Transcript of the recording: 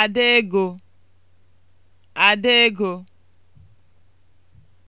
Ada ego, Ada ego